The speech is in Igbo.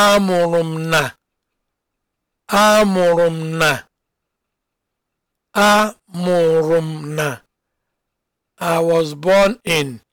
amụrụ m na amụrụ m na amụrụ m na I was born in